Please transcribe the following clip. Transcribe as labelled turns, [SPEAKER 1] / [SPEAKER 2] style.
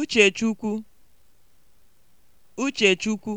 [SPEAKER 1] Uchechukwu Uchechukwu